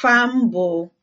fam bụ.